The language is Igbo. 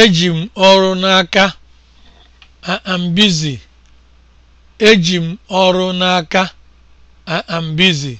Eji m ọrụ n'aka. I am busy. Eji m ọrụ n'aka. I am busy.